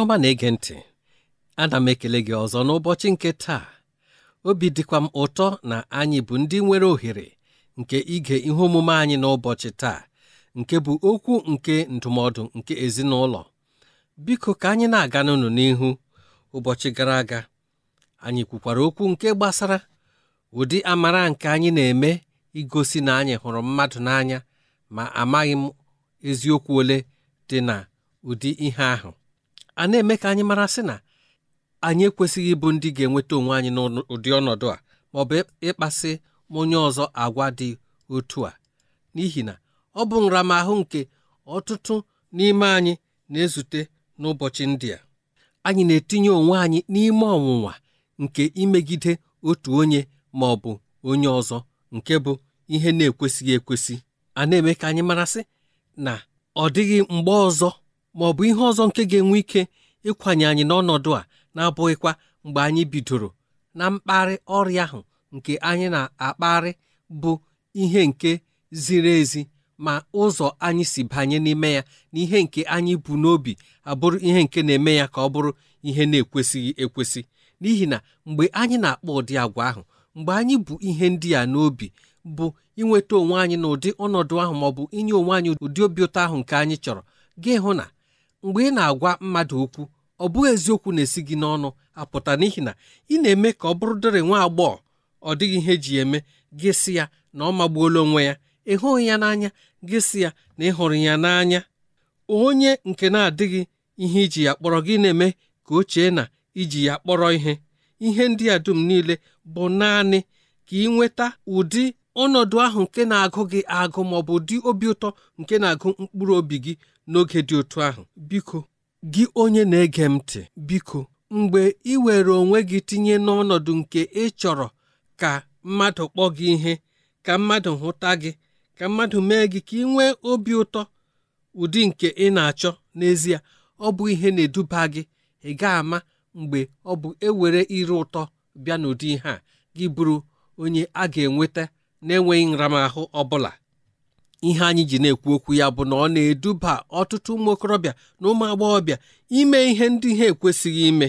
ọma na-ege ntị ana m ekele gị ọzọ n'ụbọchị nke taa obi dịkwa m ụtọ na anyị bụ ndị nwere ohere nke ige ihe omume anyị n'ụbọchị taa nke bụ okwu nke ndụmọdụ nke ezinụlọ biko ka anyị na-aga n'ụnụ n'ihu ụbọchị gara aga anyị kwukwara okwu nke gbasara ụdị amara nke anyị na-eme igosi na anyị hụrụ mmadụ n'anya ma amaghị m eziokwu ole dị na ụdị ihe ahụ a na-eme ka anyị mara sị na anyị ekwesịghị ịbụ ndị ga-enweta onwe anyị n'ụdị ọnọdụ a ma ọ bụ ịkpasị onye ọzọ agwa dị otu a n'ihi na ọ bụ nramahụ nke ọtụtụ n'ime anyị na-ezute n'ụbọchị ndị a anyị na-etinye onwe anyị n'ime ọnwụnwa nke imegide otu onye ma ọ bụ onye ọzọ nke bụ ihe na-ekwesịghị ekwesị a na-eme ka anyị marasị na ọ dịghị mgbe ọzọ ma ọ bụ ihe ọzọ nke ga-enwe ike ịkwanye anyị n'ọnọdụ a na-abụghịkwa mgbe anyị bidoro na mkparị ọrịa ahụ nke anyị na-akparị bụ ihe nke ziri ezi ma ụzọ anyị si banye n'ime ya na ihe nke anyị bụ n'obi abụrụ ihe nke na-eme ya ka ọ bụrụ ihe na-ekwesịghị ekwesị n'ihi na mgbe anyị na-akpọ ụdị agwa ahụ mgbe anyị bụ ihe ndị a n'obi bụ inweta onwe anyị na ụdị ọnọdụ ahụ maọbụ inye onwe anyị ụdị obi ụtọ ahụ nke anyị chọrọ gị hụ na mgbe ị na-agwa mmadụ okwu ọ bụghị eziokwu na-esi gị n'ọnụ apụta n'ihi na ị na-eme ka ọ bụrụ dịrị nwa agbọghọ ọ dịghị ihe eji eme gị sị ya na ọ magbuola onwe ya ịhụghị ya n'anya gị sị ya na ị hụrụ ya n'anya onye nke na-adịghị ihe iji ya kpọrọ gị na-eme ka o chee na iji ya kpọrọ ihe ihe ndị a dum niile bụ naanị ka ị nweta ụdị ọnọdụ ahụ nke na-agụ gị agụ ma ọ bụ ụdị obi ụtọ nke na-agụ mkpụrụ obi gị n'oge dị otu ahụ biko gị onye na-ege m ntị biko mgbe ị were onwe gị tinye n'ọnọdụ nke ị chọrọ ka mmadụ kpọọ gị ihe ka mmadụ hụta gị ka mmadụ mee gị ka ị nwee obi ụtọ ụdị nke ị na-achọ n'ezie ọ bụ ihe na-eduba gị ị ga-ama mgbe ọ bụ ewere ire ụtọ bịa n'ụdị ihe a gị bụrụ onye a ga-enweta na-enweghị nramahụ ọ bụla ihe anyị ji na-ekwu okwu ya bụ na ọ na-eduba ọtụtụ ụmụ okorobịa na ụmụ agbọghọbịa ime ihe ndị ha ekwesịghị ime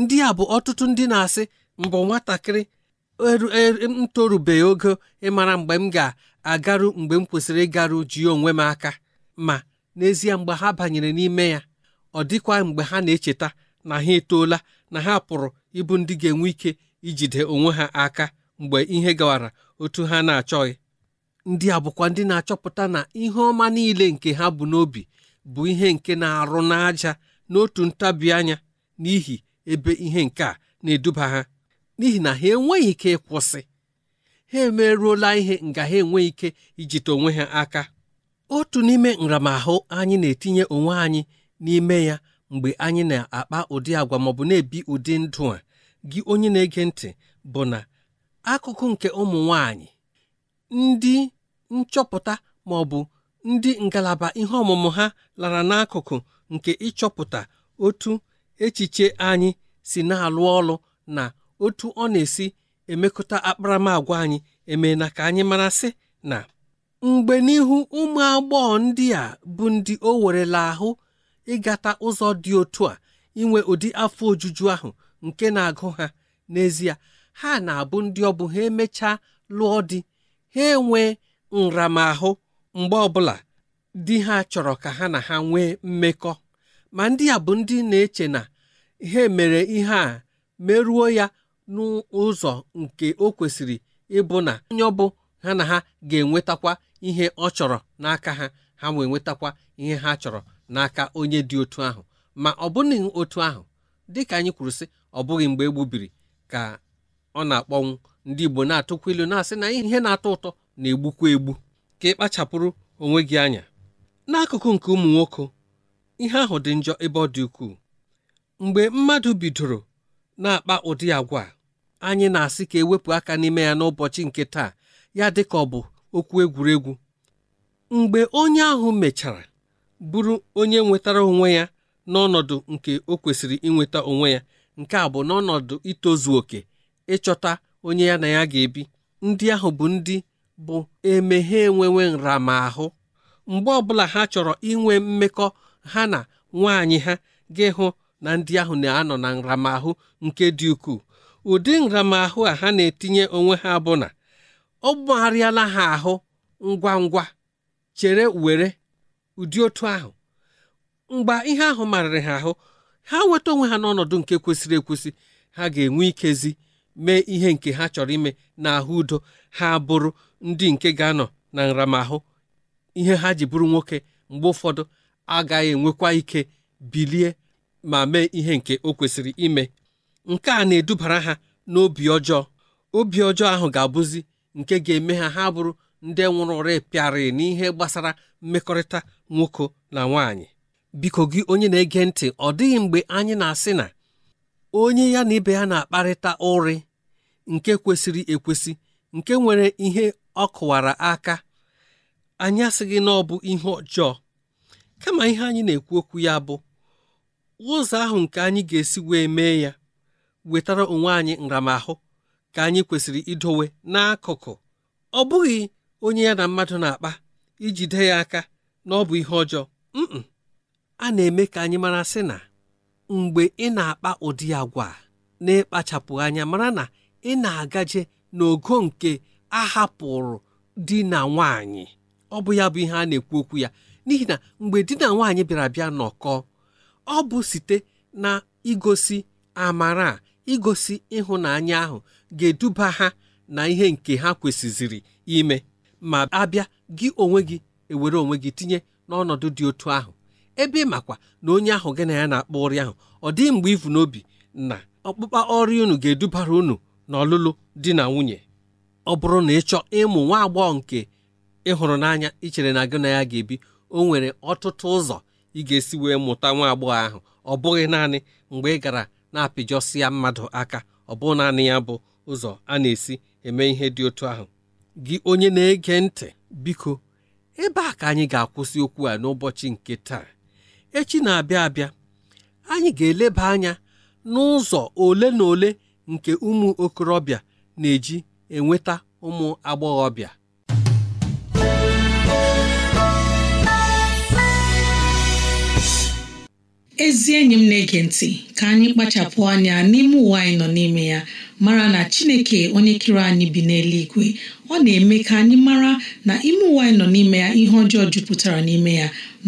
ndị a bụ ọtụtụ ndị na-asị mbụ nwatakịrị m ogo ịmara mgbe m ga-agaru mgbe m kwesịrị ịgaru ji onwe m aka ma n'ezie mgbe ha banyere n'ime ya ọ dịkwa mgbe ha na-echeta na ha etoola na ha pụrụ ịbụ ndị ga-enwe ike ijide onwe ha aka mgbe ihe gawara otu ha na-achọghị ndị a bụkwa ndị na-achọpụta na ihe ọma niile nke ha bụ n'obi bụ ihe nke na-arụ n'aja n'otu ntabi anya n'ihi ebe ihe nke a na-eduba ha n'ihi na ha enweghị ike ịkwụsị ha emerụola ihe nga ha enweghị ike ijite onwe ha aka otu n'ime nramahụ anyị na-etinye onwe anyị n'ime ya mgbe anyị na-akpa ụdị agwa maọbụ na-ebi ụdị ndụ a gị onye na-ege ntị bụ na akụkụ nke ụmụ nwanyị ndị nchọpụta ma ọ bụ ndị ngalaba ihe ọmụmụ ha lara n'akụkụ nke ịchọpụta otu echiche anyị si na-alụ ọlụ na otu ọ na-esi emekọta akparamagwa anyị eme na ka anyị mara sị na mgbe n'ihu ụmụ agbọghọ ndị a bụ ndị o werela ahụ ịgata ụzọ dị otu a inwe ụdị afọ ojuju ahụ nke na-agụ ha n'ezie ha na-abụ ndị ọ bụ ha emechaa lụọ di ha enwee nramahụ mgbe ọbụla di ha chọrọ ka ha na ha nwee mmekọ ma ndị a bụ ndị na-eche na ihe mere ihe a merụọ ya n'ụzọ nke o kwesịrị ịbụ na onye ọ bụ ha na ha ga-enwetakwa ihe ọ chọrọ n'aka ha ha wee nwetakwa ihe ha chọrọ n'aka onye dị otu ahụ ma ọ bụghị otu ahụ dịka anyị kwuru sị ọ bụghị mgbe egbubiri ka ọ na-akpọnwụ ndị Igbo na-atụkwa ilu na-asị na ihe na-atọ ụtọ na-egbukwa egbu ka ị kpachapụrụ onwe gị anya n'akụkụ nke ụmụ nwoke ihe ahụ dị njọ ebe ọ dị ukwuu mgbe mmadụ bidoro na-akpa ụdị agwa anyị na-asị ka ewepụ aka n'ime ya n'ụbọchị nke taa ya dị ka ọ bụ okwu egwuregwu mgbe onye ahụ mechara bụrụ onye nwetara onwe ya n'ọnọdụ nke o kwesịrị inweta onwe ya nke a bụ n'ọnọdụ itozu oke ịchọta onye ya na ya ga-ebi ndị ahụ bụ ndị bụ emeghe enwewe nramahụ mgbe ọbụla ha chọrọ inwe mmekọ ha na nwanyị ha gị hụ na ndị ahụ na-anọ na nramahụ nke dị ukwuu ụdị nramahụ a ha na-etinye onwe ha bụ na ọ gbagharịala ha ahụ ngwa ngwa chere were ụdị otu ahụ mgbe ihe ahụ marịrị ha ahụ ha weta onwe ha n'ọnọdụ nke kwesịrị ekwesị ha ga-enwe ikezi mee ihe nke ha chọrọ ime na ahụ udo ha bụrụ ndị nke ga-anọ na nramahụ ihe ha ji bụrụ nwoke mgbe ụfọdụ agaghị enwekwa ike bilie ma mee ihe nke o kwesịrị ime nke a na-edubara ha n'obi ọjọọ obi ọjọọ ahụ ga-abụzi nke ga-eme ha ha bụrụ ndị nwụrụ repịarị n'ihe gbasara mmekọrịta nwoke na nwaanyị biko gị onye na-ege ntị ọ dịghị mgbe anyị na-asị na onye ya na ibe ya na-akparịta ụrị nke kwesịrị ekwesị nke nwere ihe ọ kụwara aka anyị asịghị na ọ bụ ihe ọjọọ kama ihe anyị na-ekwu okwu ya bụ ụzọ ahụ nke anyị ga-esi wee mee ya wetara onwe anyị nramahụ ka anyị kwesịrị idowe n'akụkụ ọ bụghị onye ya na mmadụ na-akpa ijide ya aka na ọ bụ ihe ọjọọ mm a na-eme ka anyị mara sị na mgbe ị na-akpa ụdị agwa na-ekpachapụ anya mara na ị na-agaje n'ogo nke ahapụrụ di na nwanyị ọ bụ ya bụ ihe a na-ekwu okwu ya n'ihi na mgbe di na nwaanyị bịara bịa nọkọ ọ bụ site na igosi amara igosi ịhụnanya ahụ ga-eduba ha na ihe nke ha kwesịziri ime ma abịa gị onwe gị ewere onwe gị tinye n'ọnọdụ dị otu ahụ ebe ị makwa na onye ahụ gị na ya na-akpọ ọrịa ahụ ọ dịghị mgbe ivu n'obi na ọkpụkpa ọrụ unu ga-edubara unu n'ọlụlụ di na nwunye ọ bụrụ na ị chọọ ịmụ nwa agbọghọ nke ịhụrụ n'anya ị chere na gị na ya ga-ebi o nwere ọtụtụ ụzọ ị ga-esi wee mụta nwa agbọghọ ahụ ọ bụghị naanị mgbe ị gara na-apịjọsi ya mmadụ aka ọ bụghị naanị ya bụ ụzọ a na-esi eme ihe dị otu ahụ gị onye na-ege ntị biko ebe a ka anyị ga-akwụsị okwu a n'ụbọchị nke taa echi na-abịa abịa anyị ga-eleba anya n'ụzọ ole na ole nke ụmụ okorobịa na-eji enweta ụmụ agbọghọbịa ezi enyi m na-ege ntị ka anyị kpachapụ anya n'ime ụwa anyị nọ n'ime ya mara na chineke onye kere anyị bi n'eluigwe ọ na-eme ka anyị mara na ime ụwa anyị nọ n'ime ya ihe ọjọọ jupụtara n'ime ya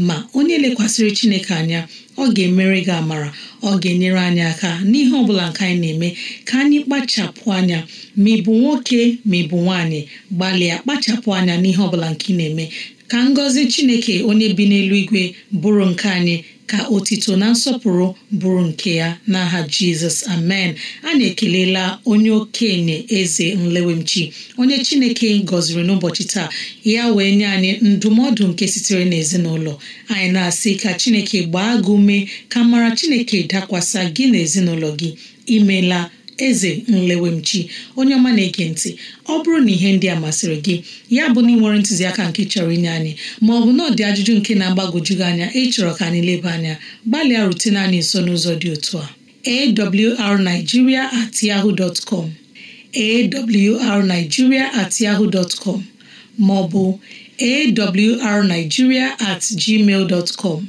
ma onye lekwasịrị chineke anya ọ ga-emere gị amara ọ ga-enyere anyị aka n'ihe ọ bụla nke anyị na-eme ka anyị kpachapụ anya ma ị bụ nwoke ma ị bụ nwaanyị gbalịa kpachapụ anya n'ihe ọbụla nke ị na-eme ka ngọzi chineke onye bi n'eluigwe bụrụ nke anyị ka otito na nsọpụrụ bụrụ nke ya n'aha jizọs amen a na-ekelela onye okenye eze nlewemchi onye chineke gọziri n'ụbọchị taa ya wee nye anyị ndụmọdụ nke sitere n'ezinụlọ anyị na-asị ka chineke gbaa gị ume ka mara chineke dakwasa gị na gị imela eze nlewemchi onye ọma na-ege ntị ọ bụrụ na ihe ndị a masịrị gị ya bụ na ị ntụziaka nke chọrọ inye anyị ma ọ bụ na ọ dị ajụjụ nke na-agbagoju gị anya ịchọrọ ka anyị leba anya gbalịa rutene anyị nso n'ụzọ dị otu a awrnigeria at yahoo dot com awrnigeria at yahoo dot com ma ọ bụ awrnigeria at gmail dot com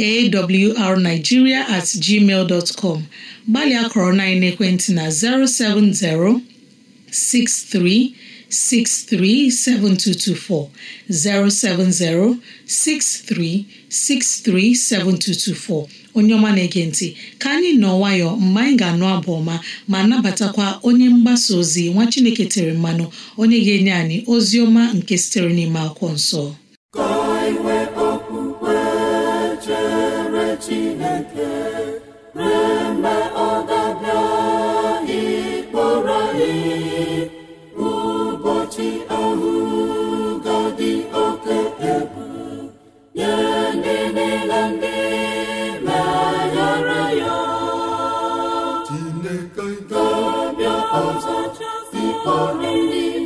awrnigeria at gmail com gbalịa kọrọ na ekwentị na 070 63 637224 070 637224 onye ọma na-ege ntị ka anyị nọ nwayọọ mgbe anyị ga-anụ abụ ọma ma nabatakwa onye mgbasa ozi nwa Chineke tere mmanụ onye ga-enye anyị ozi ọma nke sitere n'ime akwụkwọ nsọ eme ọ ga-abịa ịkpọrọ anyị ụbọchị ahụ ga-adị oke egwu ya ndị niile ndị meghara ya dị Chineke ga-abịa ọzọ ịkpọrọ ndị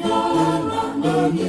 ha na anyị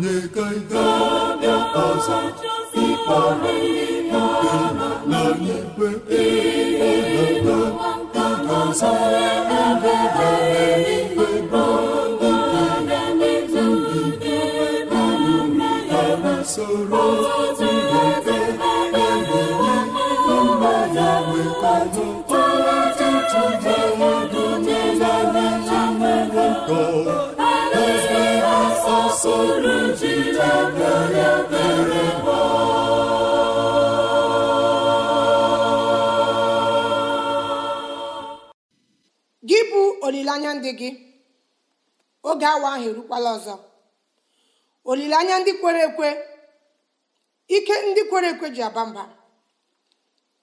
onye kaịda ọzọ ikpọrọ ikpe na ikpe ịlụta ọzọ ebebere ikpe ndị ndị ndị ndị ndị ndị soro gị bụ olileanya ndị gị oge awa ahụ erukwala ọzọ olileanya ndị kwere ekwe ike ndị kwere ekwe ji aba mba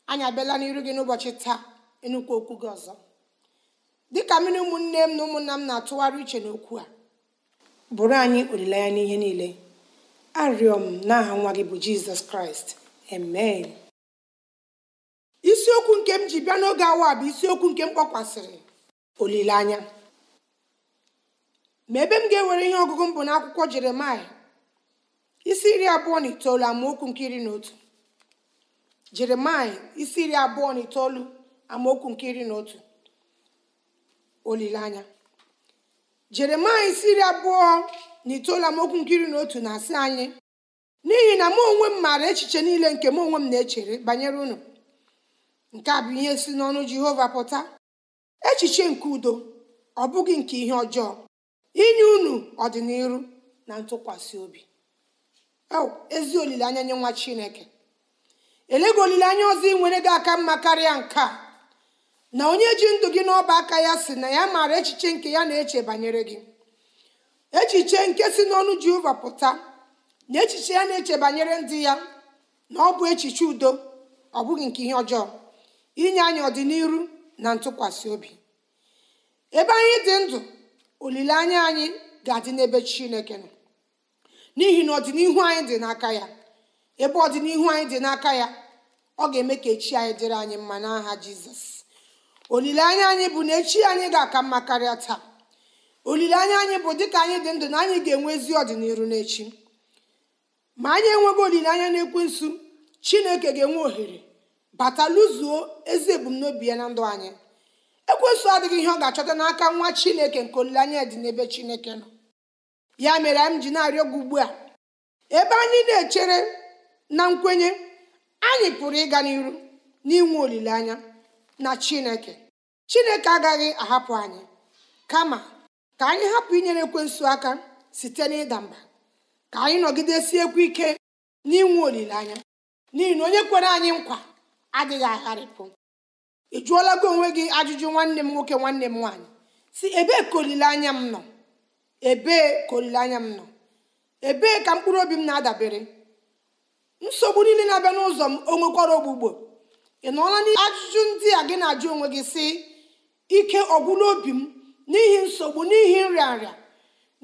anyị abịala n'iru gị n'ụbọchị taa ịnụkwu okwu gị ọzọ dịka mmiri ụmụnne m na ụmụnna m na-atụgharị uche n'okwu a bụrụ anyị olileanya n'ihe niile arịọ m n'aha nwa gị bụ jizọs kraịst amen isiokwu nke m ji bịa n'oge awa bụ isiokwu nke m kpọkwasịrị olileanya ma ebe m ga-ewere ihe ọgụgụ m bụ n'akwụkwọ jeremaya isi iri abụọ na itoolu amaokwu nke iri na otu jeremaya isi iri abụọ na itoolu amaokwu nke iri na otu olileanya jeremaya isi iri abụọ na itoolu amaokwu na otu na-asị anyị n'ihi na mụ onwe m maara echiche niile nke mụ onwe m na-echere banyere unu nke a bụ ihe si n'ọnụ jehova pụta echiche nke udo ọ bụghị nke ihe ọjọọ inye unu ọdịnihu na ntụkwasị obi ezi olileanya nye nwa chineke elego olileanya ọzọ ị nwere gị aka mma karịa nke a na onye ji ndụ gị n'ọba aka ya si na ya maara echiche nke ya na-eche banyere gị echiche nke si n'ọnụ jehova pụta na echiche ya na-eche banyere ndị ya na ọ bụ echiche udo ọ bụghị nke ihe ọjọọ inye anyị ọdịnihu na ntụkwasị obi ebe anyị dị ndụ olileanya anyị ga-adị n'ebe chineke nọ n'ihi na ọdịnihu anyị dị n'aka ya ebe ọdịnihu anyị dị n'aka ya ọ ga-eme ka echi anyị dịrị anyị mma n'aha jizọs olileanya anyị bụ na echi anyị ga-aka mma karịa taa olileanya anyị bụ dịka anyị dị ndụ na anyị ga-enwe ezi ọdịnihu n'echi ma anyị enweghị olileanya nsu chineke ga-enwe ohere bata lụzuo ezi ebumnobi ya na ndụ anyị ekwensu adịghị ihe ọ ga-achọta n'aka nwa chineke nke olileanya dị n'ebe chineke nọ ya mere anyị ji na-arịọ gị ugbu a ebe anyị na-echere na nkwenye anyị pụrụ ịga n'iru n'inwe olileanya na chineke chineke agaghị ahapụ anyị kama ka anyị hapụ inyere ekwensu aka site n'ịda mba ka anyị ekwe ike n'inwe olileanya n'ihi na onye kwere anyị nkwa adịghị agharịpụ ị jụọla gị onwe gị ajụjụ nwanne m nwoke nwanne m nwaanyị si ebee ka olileanya m nọ ebee ka olileanya m nọ ebee ka mkpụrụ obi m na-adabere nsogbu niile na-abịa n'ụzọ m o ogbugbo ị nọọla n'ajụjụ ndị a gị na-ajụ onwe gị sị ike ọgwụla obi m n'ihi nsogbu n'ihi nrịarịa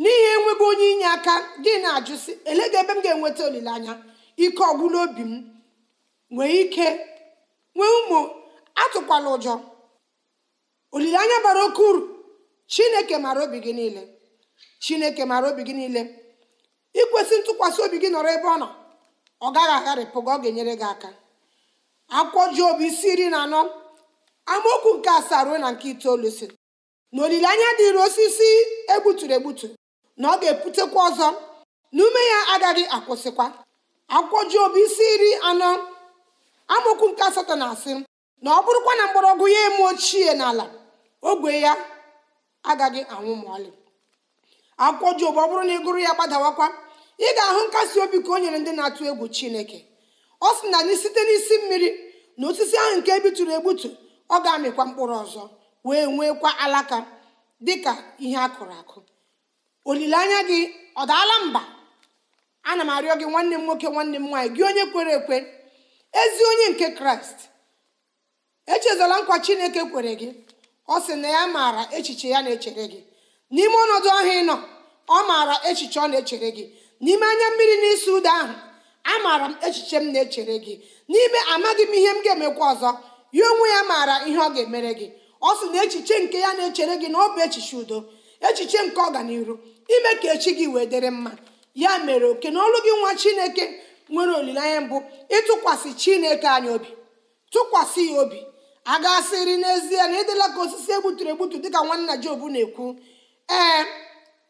n'ihi enweghị onye inye aka gị na-ajụ sị elega ebe m ga-enweta olileanya ike ọgwụla obi m nwee ike nwee ụmụ atụkwala ụjọ olileanya bara oke uru chineke mara obi gị niile chineke mara obi gị niile ikwesị ntụkwasị obi gị nọrọ ebe ọ nọ ọ gaghị agharịpụ gị ọ ga-enyere gị aka akwụkwọ Job isi iri na anọ amaokwu nke asaa ruo na nke itoolu si na olileanya dịrị osisi egbuturu egbutu na ọ ga-eputekwa ọzọ na ume ya agaghị akwụsịkwa akwụkwọ Job isi iri anọ amaokwu nke asatọ na-asị na ọ bụrụkwa na mgbọrọgwụ ya eme ochie n'ala ogwe ya agaghị anwụ ma ọlị akwụkwọ Job ọ bụrụ na ị gụrụ ya gbadawakwa ị ga-ahụ nkasi obi ka o nyere ndị na-atụ egwu Chineke ọ sị na site n'isi mmiri na osisi ahụ nke ebitụrụ egbutu ọ ga-amịkwa mkpụrụ ọzọ wee nwekwa alaka dịka ihe a kụrụ akụ olileanya gị ọ daala mba ana m arịọ gị nwanne m nwoke nwanne m nwaanyị gị onye kwere ekwe ezi onye nke kraịst echezola nkwa chineke kwere gị ọ sị na ya maara echiche ya na-echere gị n'ime ọnọdụ ahụ ịnọ ọ maara echiche ọ na-echere gị n'ime anya mmiri na isi ụda ahụ amaara m echiche m na-echere gị n'ime amaghị m ihe m ga-emekwa ọzọ ya onwe ya maara ihe ọ ga-emere gị ọ sị na echiche nke ya na-echere gị na ọ bụ echiche udo echiche nke ọganihu ime ka echi gị wee dịrị mma ya mere oke na ọlụ gị nwa chineke nwere olileanya mbụ ịtụkwasị chineke anyị obi tụkwasị ya obi a gasịrị n'ezie na ịdịla ka osisi egbuturu egbutu dịka nwanna Job na-ekwu ee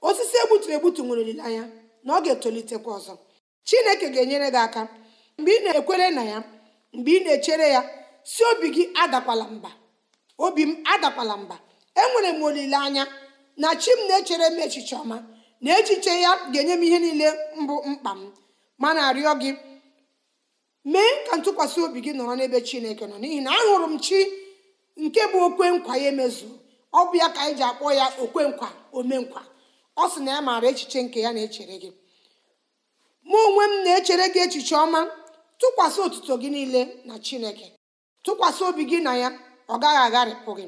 osisi egbuturu egbutu nwere olileanya na ọ ga-etolitekwa ọzọ chineke ga-enyere gị aka mgbe ị na-ekwere na ya mgbe ị na-echere ya si obi gị adakwala mba obi m adakwala mba enwere m olileanya na chi m na-echere m echiche ọma na echiche ya ga-enye m ihe niile mbụ mkpa m ma na-arịọ gị mee ka ntụkwasị obi gị nọrọ n'ebe chineke nọ n'ihi na ahụrụ m chi nke bụ okwe nkwa ya emezu ọ bụ ya ka anyị ji akpọ ya okwe nkwa omenkwa ọ sị na ya maara echiche nke ya na-echere gị mụ onwe m na-echere gị echiche ọma tụkwasị otuto gị niile na chineke tụkwasị obi gị na ya ọ gaghị agharịpụ gị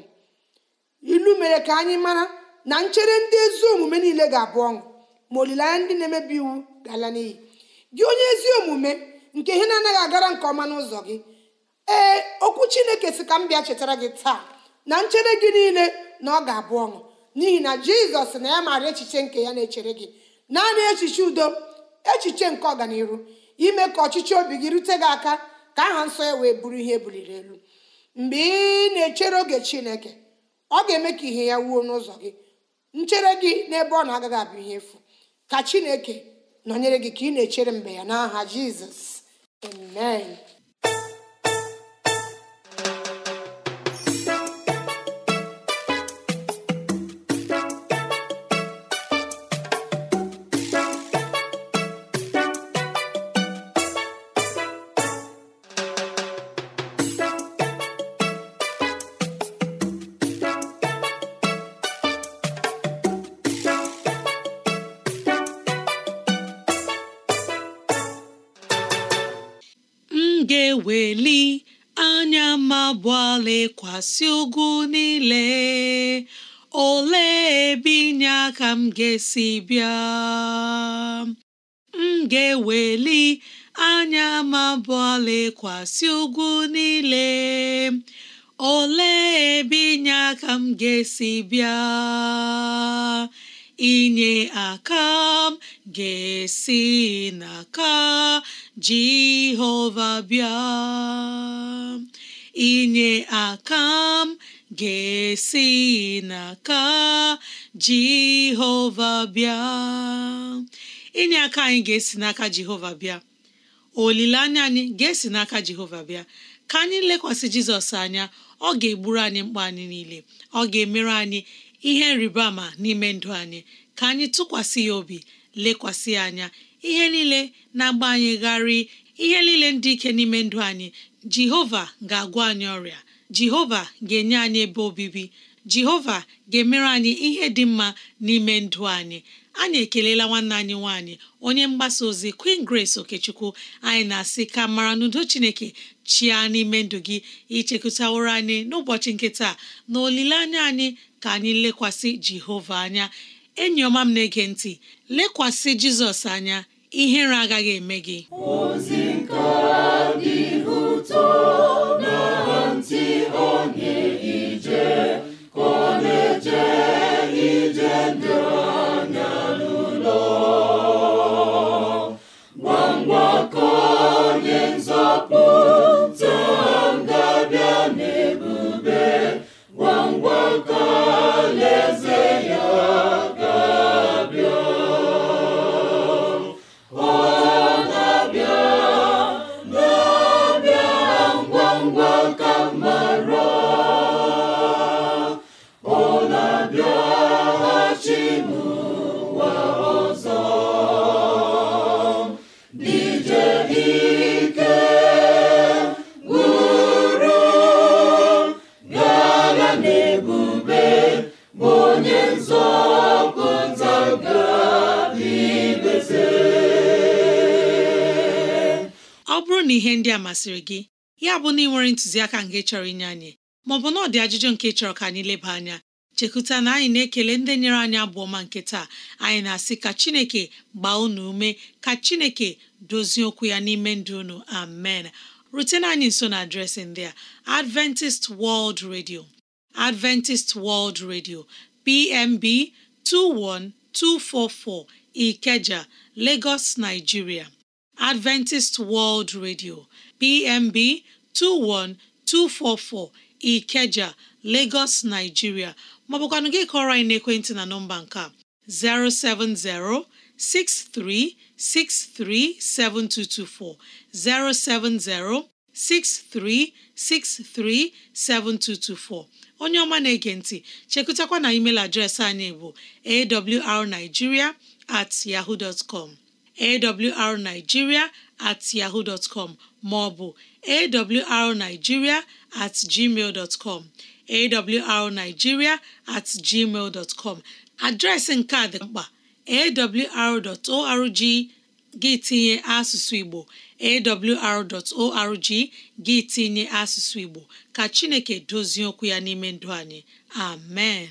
ilu mere ka anyị mara na nchere ndị ezi omume niile ga-abụ ọṅụ ma olileanya ndị na-emebi iwu ga-ala n'iyi gị onye ezi omume nke ihe na-anaghị agara nke ọma n'ụzọ gị ee okwu chineke si ka m bịa chetara gị taa na nchere gị niile na ọ ga-abụ ọṅụ n'ihi na jizọs na ya maara echiche nke ya na-echere gị naanị echiche udo echiche nke ọganihu ime ka ọchịchị obi gị rute gị aka ka aha nsọ ya wee bụrụ ihe e buliri elu mgbe ị na-echere oge chineke ọ ga-eme ka ihe ya wuo n'ụzọ gị nchere gị n'ebe ọ na-agaghị abụ ihe efu ka chineke nọnyere gị ka ị na-echere mgbe ya n'aha jizọs amen lekwasị ugwu niile olee ebe inye aka m ga-esi bịa m ga-eweli anya m abụọ lekwasị ugwu niile ole ebe inye aka m ga-esi bịa inye aka m ga-esi n'aka Jehova bịa inye aka m ga-esi n'aka Jehova bịa inye aka anyị ga-esi n'aka Jehova bịa olileanya anyị ga-esi n'aka Jehova bịa ka anyị lekwasị Jizọs anya ọ ga-egburu anyị mkpa anyị niile ọ ga-emere anyị ihe nrịbama n'ime ndụ anyị ka anyị tụkwasị ya obi lekwasị ya anya ihe niile na-agba ihe niile ndị ike n'ime ndụ anyị jehova ga-agwọ anyị ọrịa jehova ga-enye anyị ebe obibi jehova ga-emere anyị ihe dị mma n'ime ndụ anyị anyị ekelela nwanne anyị nwanyị onye mgbasa ozi Queen Grace Okechukwu anyị na-asị ka mara n'udo Chineke chia n'ime ndụ gị ichekụtaworo anyị n'ụbọchị nke taa na olileanya anyị ka anyị lekwasị Jehova anya enyi ọma m na-ege ntị lekwasị Jizọs anya ihere agaghị eme gị soul. masịrị gị ya bụ na ị nwere ntụziaka nke chọrọ inye anyị maọbụ na ọ dị ajụjụ nke chọrọ ka anyị leba anya chekwuta na anyị na-ekele ndị nyere anyị abụ ọma nke taa anyị na-asị ka Chineke gbaa unu ume ka Chineke dozie okwu ya n'ime ndụ unu amen rutena anyị nso na adreesị ndị a Adventist World Radio Adventist World Radio PMB 21244 Ikeja Lagos Nigeria Adventist World Radio PMB 21244 Ikeja Lagos Nigeria maọbụkwanụ gị kọrọ anyị n'ekwentị na nọmba nke 070 63637224 070 63637224 onye ọma na-ege ntị chekụtakwa na email adreesị anyị bụ awrnigeria at yahoo dot com awrnigeria at ọ bụ com maọbụ awrnigeria at gmail com at gmail adreesị nke a dị mkpa awr.org gị tinye asụsụ Igbo awr.org gị tinye asụsụ Igbo ka Chineke dozie okwu ya n'ime ndụ anyị amen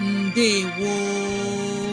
ndewo